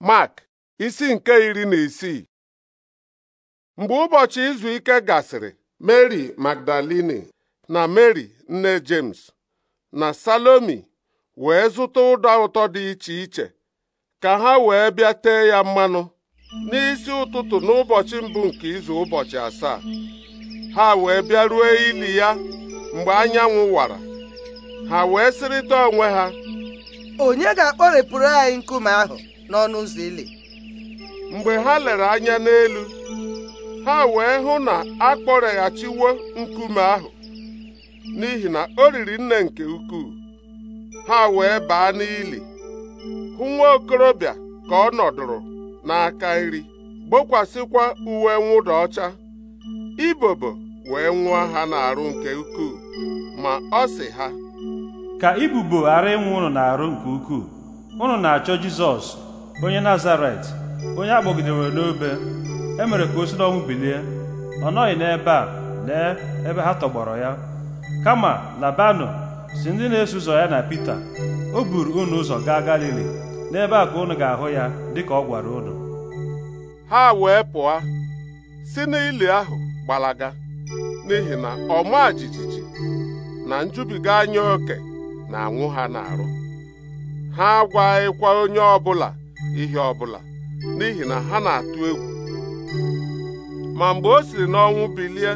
Mark isi nke iri na isii mgbe ụbọchị izu ike gasịrị Mary Magdalini na Mary nne James na Salomi wee zụta ụda ụtọ dị iche iche ka ha wee bịa tee ya mmanụ n'isi ụtụtụ n'ụbọchị mbụ nke izu ụbọchị asaa ha wee bịa ruo ili ya mgbe anyanwụ wara ha wee sịrịta onwe ha onye ga-akpọrepụrụ anyị nkume ahụ n'ọnụ ụzọ ili mgbe ha lere anya n'elu ha wee hụ na a kpọreghachiwo nkume ahụ n'ihi na o riri nne nke ukwuu ha wee baa n'ili hụ nwa okorobịa ka ọ nọdụrụ n'aka iri gbokwasịkwa uwe mwụda ọcha ibobo wee nwụọ ha n'arụ nke ukwuu ma ọ si ha ka ibubo ghara ịnwụ ụnụ n'arụ nke ukwuu ụnụ na-achọ Jizọs onye nazaret onye a n'obe e mere ka o si n'ọnwụ bilie ọ nọghị n'ebe a lee ebe ha tọgbọrọ ya kama labanụ si ndị na-eso ụzọ ya na Pita o buru unu ụzọ gaa Galili n'ebe a ka unu ga-ahụ ya dịka ọ gwara unu ha wee pụọ si n'ili ahụ gbalaga n'ihi na ọma jijiji na njubiga anya oke na-anwụ ha na-arụ, ha agwaghịkwa onye ọbụla ihe ọbụla n'ihi na ha na-atụ egwu ma mgbe o siri n'ọnwụ bilie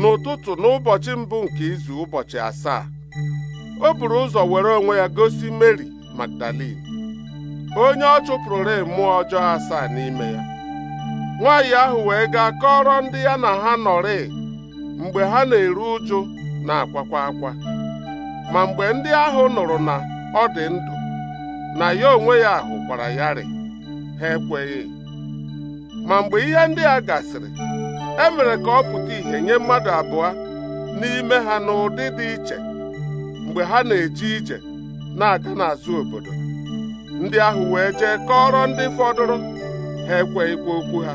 n'ụtụtụ n'ụbọchị mbụ nke izu ụbọchị asaa o buru ụzọ were onwe ya gosi Meri Magdalin onye ọ chụpụrụre mmụọ ọjọọ asaa n'ime ya nwaanyị ahụ wee gaa kọrọ ndị ya na ha nọrị mgbe ha na-eru ụjụ na-akwakwa akwa ma mgbe ndị ahụ nụrụ na ọ dị ndụ na ya onwe ya ahụ gwara ya rị ha ekweghị ma mgbe ihe ndị a gasịrị e mere ka ọ pụta ìhè nye mmadụ abụọ n'ime ha n'ụdị dị iche mgbe ha na-eje ije na-aga n'azụ obodo ndị ahụ wee jee kọrọ ndị fọdụrụ ha ekweghịkwa okwu ha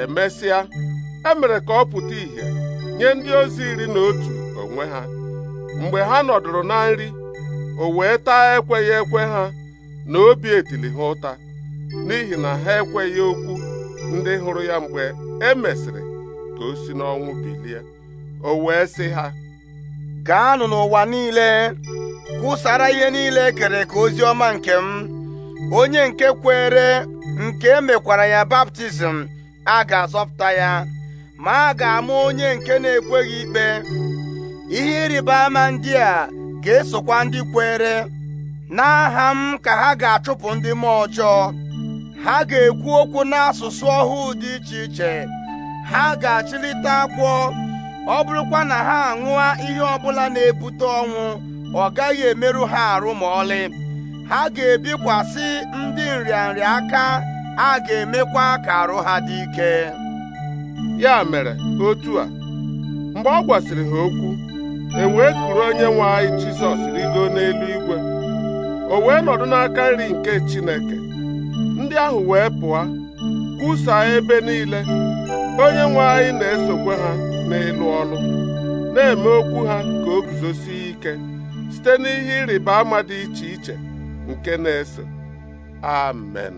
emesịa e mere ka ọ pụta ìhè nye ndị ozi iri na otu onwe ha mgbe ha nọdụrụ na nri o wee taa ekweghị ekwe ha na obi etili ha ụta n'ihi na ha ekweghị okwu ndị hụrụ ya mgbe e mesịrị ka o si n'ọnwụ bilie o wee sị ha gaanụ n'ụwa niile kwụsara ihe niile e kere ka ozi ọma nke m onye nke kwere nke emekwara ya baptizim a ga-azọpụta ya ma a ga-ama onye nke na-ekweghị ikpe ihe ịrịba ama ndị a ga-esokwa ndị kwere n'aha m ka ha ga-achụpụ ndị mmụọ ọjọọ ha ga-ekwu okwu n'asụsụ ọhụụ dị iche iche ha ga-achịlite akwọ ọ bụrụkwa na ha aṅụa ihe ọbụla na-ebute ọnwụ ọ gaghị emerụ ha arụ ma ọlị ha ga-ebikwasị ndị nrịanrịa aka a ga-emekwa ka arụ ha dị ike ya mere otu a mgbe ọ gwasịrị ha okwu e wee kuru onye nwe anyị Jizọs rigo n'elu igwe o wee nọdụ n'aka nri nke Chineke ndị ahụ wee pụọ kwusaa ebe niile onye nwe anyị na-esokwa ha n'ịlụ ọnụ, na-eme okwu ha ka o guzosie ike site n'ihe ịrịba ama dị iche iche nke na-eso amen